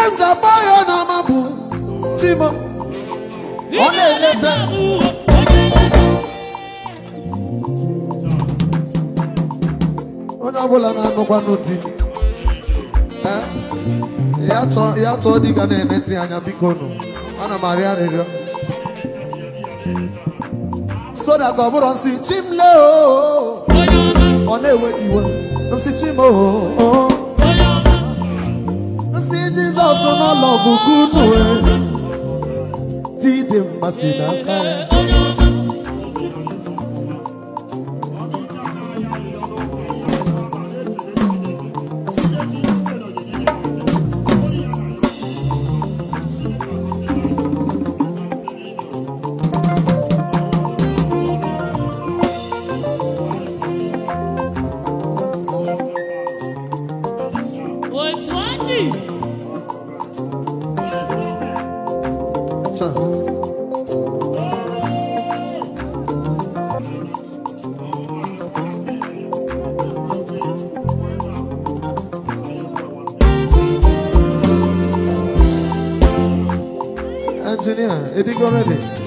ihe njaba ya na amabụ eh? chimo ọ na-eleta onye ọbụla na-anụkwanụ di ya chọọ di ga na-eneti anya biko nụ ana m arịọ arịrịọ so that ọ bụrụ nsị chimle ọ na-ewe iwe nsị Chimoo. ọ bụghị unu dị dị mmasị n'aka ya engineer, it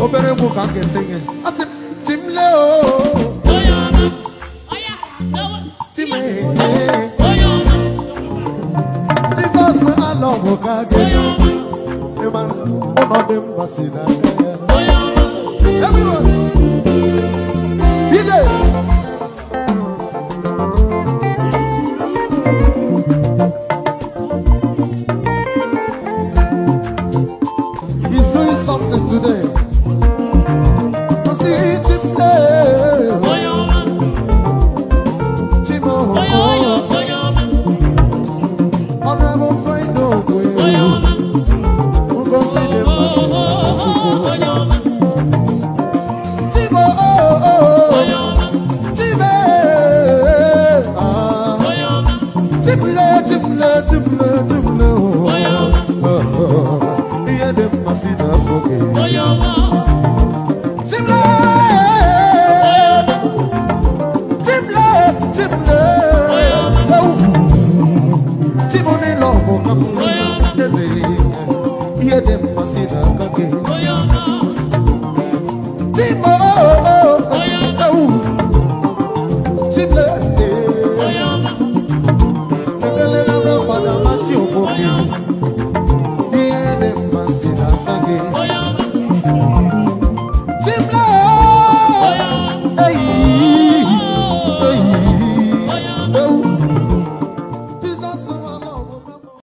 Obere book I can sing it. I Jesus, I love you. man, none them was in a get them